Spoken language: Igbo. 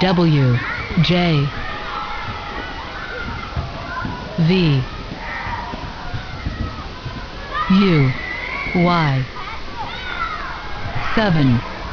W J V U Y 7